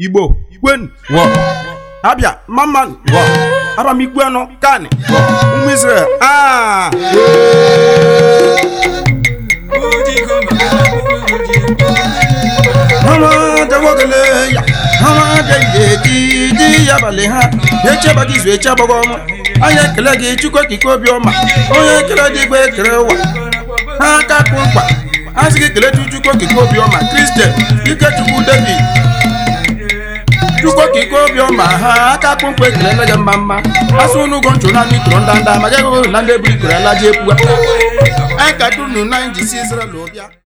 igbo igwen abia maman a anọ kan ụmụ ọma onye ekele a sị gị chukwu okike obi chukwu ka ike obiọma ha aka akpụmkpụ ekelele gị mma mma masị nchụ na ndị tụrụ ndanda ma jeghị na ndị eburu ikoro ala ji ekwuwa na